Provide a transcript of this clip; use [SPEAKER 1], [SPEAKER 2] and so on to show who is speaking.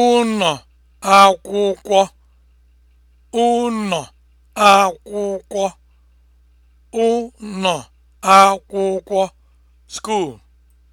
[SPEAKER 1] ụnọ akwụkwọ ụnọ
[SPEAKER 2] akwụkwọ ụnọ akwụkwọ (school)